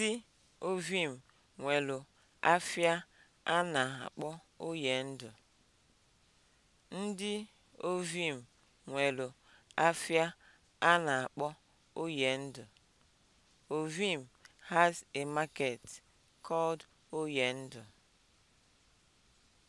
Ndị Ovim nwelu afịa a na-akpọ ndụ. Ndị Ovim nwelu a na-akpọ Oyendu. Ovim has a market called ndụ